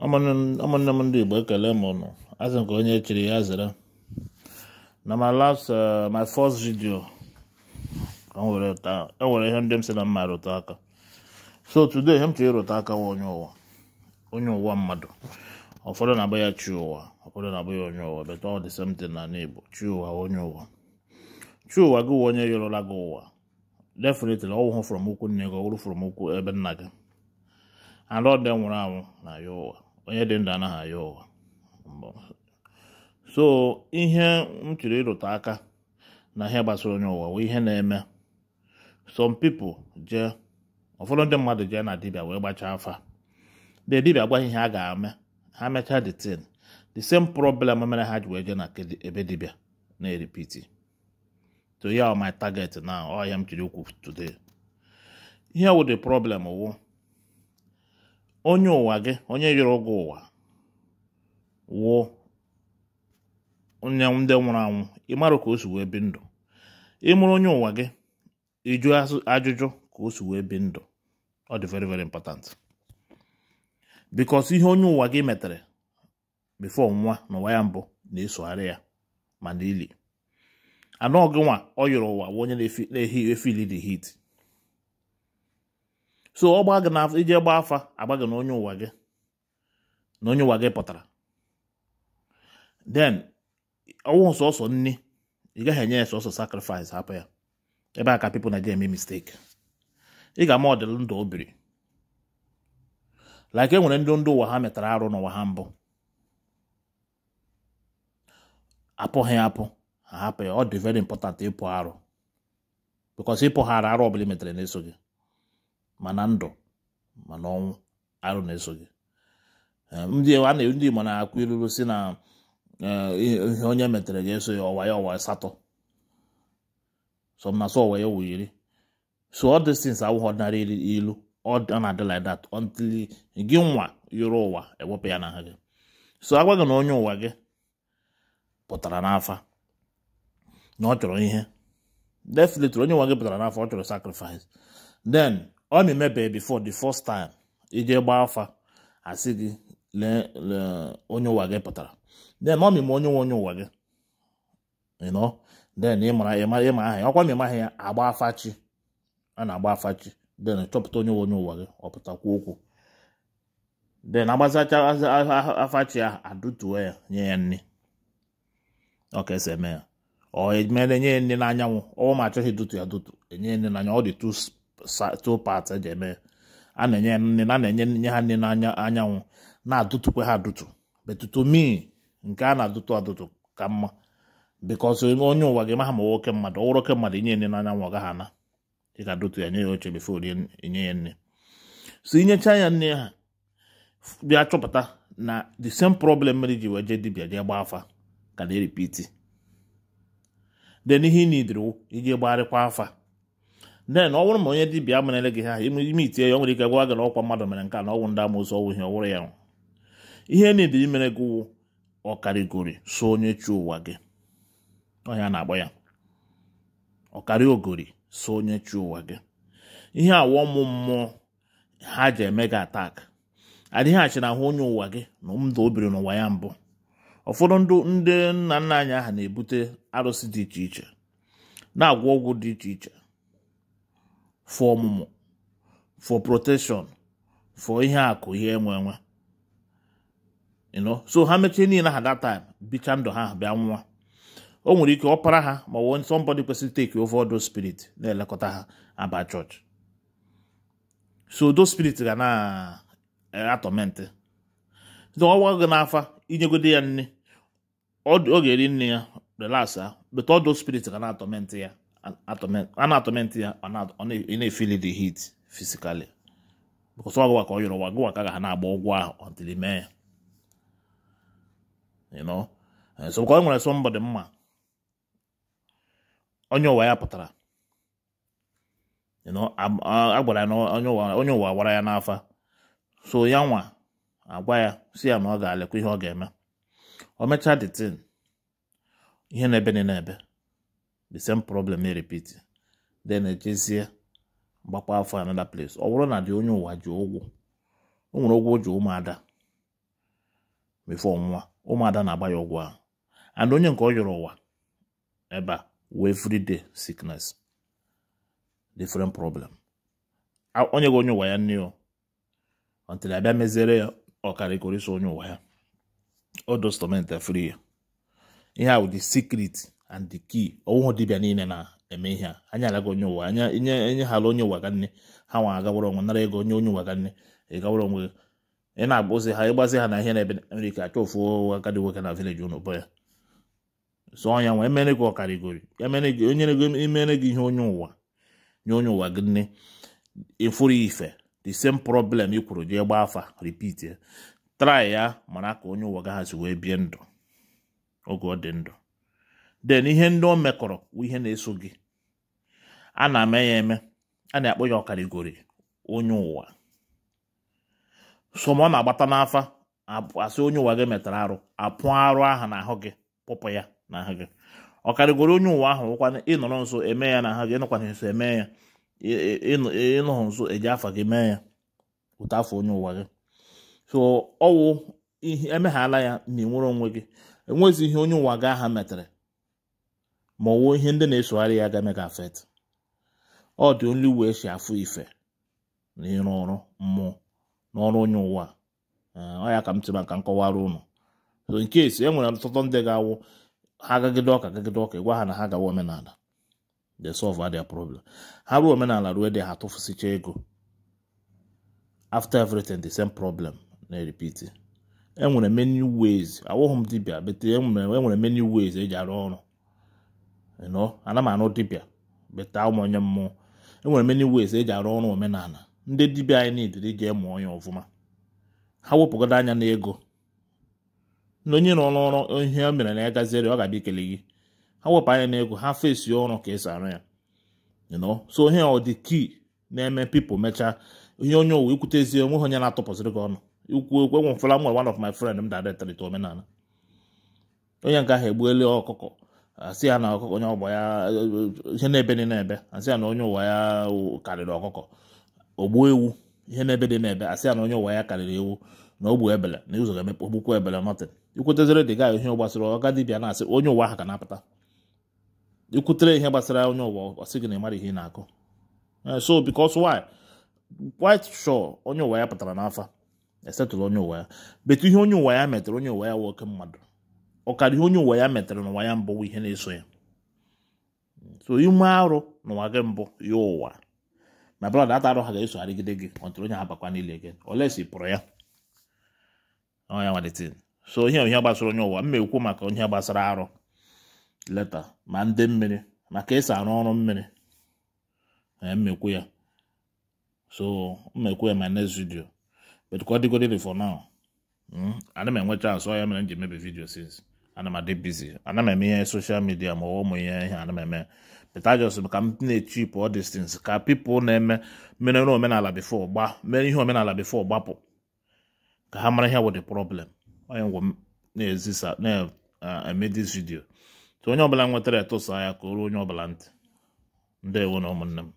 ụmụnne m ndị igbo ekele m ụnụ azị nke onye chiri ya zere na my last uh, my first video enwere e ihe ndị m si na mma rụta aka so today ihe m chọrọ ịrụta aka onye ụwa onye ụwa mmadụ ụfọdụ na-abụ ya chi ụwa ụfọdụ na-abụ ya onye ụwa but all the na n'igbo chi ụwa onye ụwa chi ụwa gị onye yọrọla gị ụwa definitely ọwụhụ from ụkwụ nne gị ọ wụrụ from ụkwụ ebe nna gị anọ dị nwụrụ anwụ na ya ụwa onye dị ndụ anaghị aya ụwa so ihe m chịrị ịrụta aka na ihe gbasara onye ụwa wee ihe na-eme some people je ụfọdụ ndị mmadụ jee na dibịa wee gbachaa afa na dibia gwa ihe a ga-eme ha mechaa the tin the same problem mere ha ji wee jee na ebe dibịa na-eripiti to ya my target na ọhịa m chiri ukwu today ihe wụ the problem wụ onye ụwa gị onye yọrọ gị ụwa wụọ onye ndị nwụrụ anwụ ị ịmara ka o si wee bi ndụ ịmụrụ onye ụwa gị ịjụ ajụjụ ka o si wee bi ndụ ọ dị very very important because ihe onye ụwa gị metere before nwa n'ụwa ya mbụ na-esogharị ya ma n'ili anụ gị nwa ọ yọrọ ụwa wụ onye na-efi ehi the heat so ọ gị iji gbaa afa agba gị na onye ụwa gị na onye ụwa gị pụtara then ọnwụ sọsọ nni ị gaghị enye ya sọsọ sacrifice hapụ ya ebe a ka na Nigeria eme mistake ị ga-ama ọdịl ndụ obiri like e nwere ndị ndụ ụwa ha metara arụ n'ụwa ha mbụ apụghị apụ ha hapụ ya ọ dị very important ịpụ arụ because ịpụ ha arụ ọbụla metere na-eso gị ma na ndụ ma na ọnwụ arụ na-eso gị ehm, ndị ndị Igbo na-akụ ilulu si na eh, ihe onye metere gị eso ya ọwa ya ọwa asatọ some na so ọwa ya ọwa iri so all these things awụghị ọdịnala ilu ọ na-adị like that until gị nwa yụrụ ụwa ewepụ ya n'aha gị so agwa gị na onye ụwa gị pụtara n'afa na ọ chọrọ ihe definitely onye ụwa gị pụtara n'afa ọ chọrọ sacrifice then ọ na-emebe before the first time ije gbaa afa asị gị lee onye ụwa gị pụtara then ọ mịma onye nwe onye ụwa gị then ịmara ịma aha ya ọkwa ma ịmaghị ya agba afachi a na-agba afachi then chọpụta onye nwe onye ụwa gị ọpụtakwa okwu then agbazacha afachi a adụtuo ya nye ya nne ọ ọka esi eme ya ọ emere nye ya nne n'anyanwụ ọnwa ma achọghị dutu ya dutu enye ya nne n'anya ọ dị too two parts eji eme a na-enye nne na na-enye nye ha nri n'anya anyanwụ na-adụtụkwa ha adụtụ betutu mi nke a na-adụtụ adụtụ ka mma bikọs onye ụwa gị maha ma nwoke mmadụ ọwụrụ oke mmadụ inye nri n'anyanwụ ọ gaghị ana ị adụtụ ya nye ya oche bifo inye ya nne. so inyecha ya nne ha bịa chọpụta na the same problem mere ji wee jee dibia jee gbaa afa ka na-eripiti then ihe ị na idiri iji gbarịkwa afa then ọ bụrụ ma onye dibịa merele gị ha ime itie ya nwere ike gwa gị na ọkwa mmadụ mere nke a na ọnwụ ndị amụsụ ọwụ ihe ọwụrụ ya ihe niile imere gị wụ ọkarịgori so onye chi ụwa gị ọhịa na-agba ya ọkari ogori so onye chi ụwa gị ihe awọ mụ mmụọ ha ji eme gị atak adịghị achị na ahụ onye ụwa gị na ndụ o biri n'ụwa ya mbụ ụfọdụ ndị nna nna anyị aha na-ebute arụsị dị iche iche na-agwọ ọgwụ dị iche iche for ọmụmụ for protection for ihe akụ ihe enwe enwe so ha mechie niile ha that time bicha ndụ ha bịa nwa o nwere ike ọpara ha ma won somebody kwesịrị take over odo spirit na-elekọta ha aba church so those spirit ga na-atọmentị eh, ọwa gị n'afa inyegode ya nne ọ eri nne ya relax ha but odo spirit ga na-atọmentị ya a ya ọ na-efili the heat physically because ọ gụwa ka ọ yọrọ ụwa gụwa ka ga na-agba ụgwọ ahụ until mee ya so ka ọ nwere somebody mma onye ụwa ya pụtara you a gwara ya na onye ụwa gwara ya n'afa so ya nwa agwa ya si ya na ọ ga-alekwa ihe ọ ga-eme o mechaa the ihe na-ebe na ebe the same problem na-repeat then ejezie gbakwa afọ another place ọ bụrụ na dị onye ụwa ji ụgwọ o nwere ụgwọ ji ụmụada mefọ nwa ụmụada na-agba ya ụgwọ ahụ and onye nke ọ yọrọ ụwa ebe a wee everyday sickness different problem onye gị onye ụwa ya nne o until abịa meziere ya ọkarịkọrịsọ onye ụwa ya ọ dostọment free ya ihe a wụ the secret and the key ọwụhụ dibịa niile na-eme ihe a anya alaga onye ụwa anya enye enye hala onye ụwa ga nne ha nwa agawara onwe nara ego onye onye ụwa ga nne ịgawara onwe ị na agbụzi ha ịgbazi ha na ihe na-ebe Amerika achọ ofu agadi nwoke na vileji ụnụ bụ ya so ọnya nwa emere gị ọkarịgori emere e e gị ihe onye ụwa nye onye ụwa gị nne ịfụrụ ife the same problem ị kwuru gị gbaa afa repeat ya try ya mara ka onye ụwa ga ha si wee bie ndụ oge ọ dị ndụ den ihe ndị o mekọrọ wụ ihe na-eso gị a na-eme ya eme a na-akpọ ya ọkarịgori onye ụwa so ma ọ na-agbata n'afa asị onye ụwa gị metara arụ apụ arụ ahụ gị pụpụ ya n'ahụ gị ọkarịgori onye ụwa ahụ wụkwana ịnọrọ nso eme ya n'ahụ gị ịnọkwana nso eme ya ịnọghị nso eji afa gị mee ya ụta afọ onye ụwa gị so ọwụ emeghala ya na ị nwere onwe gị enwezi ihe onye ụwa gị aha metara ma ọwụọ ihe ndị na-esogharị ya ga-eme gị afet ọ dị onye uwe esi afụ ife na ịrụ ọrụ mmụọ n'ọrụ onye ụwa ọ ya ka m tiri maka nkọwara ụnụ so nke esi e nwere ọtụtụ ndị ga-awụ ha gagide ọka gagide ọka ịgwa ha na ha gawa omenala they solve their problem ha ruo omenala ruo dị ha tụfụsicha ego after everything the same problem na-repeat enwere many ways awụghị m dibịa bete enwere e many ways eji arụ ọrụ you ana m anụ dibịa beta ụmụ onye mmụọ enwere many ways eji arụ ọrụ omenala ndị dibịa anyị niidiri jee mụọ ya ọfụma ha wepụgodo anya n'ego ego na onye nọ n'ọrụ ihe o mere na ya gaziere ọ ga-abịa ikele gị ha wepụ anya na ego ha fesi ọrụ ka esi arụ ya so ihe ọ dị kii na-eme pipụl mechaa ihe onye owu ikwutezie ezi onwe onye na-atụpụsịrị gị ọnụ ikwu okwu enwefela m one of my friend m dadetrịta omenala onye nke ahụ egbuela ọkụkọ asị ya na ọkụkọ onye ọgbọ ya ihe na-ebe dị na-ebe asị ya na onye ụwa ya karịrị ọkụkọ ogbuo ewu ihe na-ebe dị na-ebe asị ya na onye ụwa ya karịrị ewu na ogbu ebele na ụzọ ga-emepe ogbukwu ebele nọtịn ikwutezere dị gaghị ihe gbasara ọga dibịa na-asị onye ụwa ahụ ka na-apụta ikwutere ihe gbasara onye ụwa ọsị gị na ịmara ihe ị na-akụ eh, so because why quite sure onye ụwa ya pụtara n'afa esetụrụ onye ụwa ya betu ihe onye ụwa ya metụrụ onye ụwa ya nwoke mmadụ ọkara ihe onye ụwa ya metara n'ụwa ya mbụ ihe na-eso ya so ime arụ n'ụwa gị mbụ ya ụwa na brọda ata arụ ha ga-esogharịgide gị ọtụrụ onye ha bakwa n'ile gị olesi pụrụ ya ọnya nwalitin so ihe ihe gbasara onye ụwa mma ekwu maka onye gbasara arụ leta ma ndị mmiri maka esi arụ ọrụ mmiri mmekwu ya so mmekwu ya ma next video but ka ọ for now hmm? ana m enwe chance ya mere m ji emebi vidio since ana m adị bizi ana m eme ihe soshal midia ma ọwụ m ihe ihe ana m eme peta jos ka m na-echipụ all distance ka pipụl na-eme mere omenala bifo gba mere ihe omenala bifo gbapụ ka ha mara ihe wụ the problem onye ngwa na-ezisa na-eme uh, this vidio so onye ọbụla nwetara etụsa ya ka o onye ọbụla ntị ndị ndewo na ụmụnne m